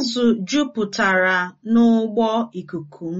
Azụ jupụtara n'ụgbọ ikuku m.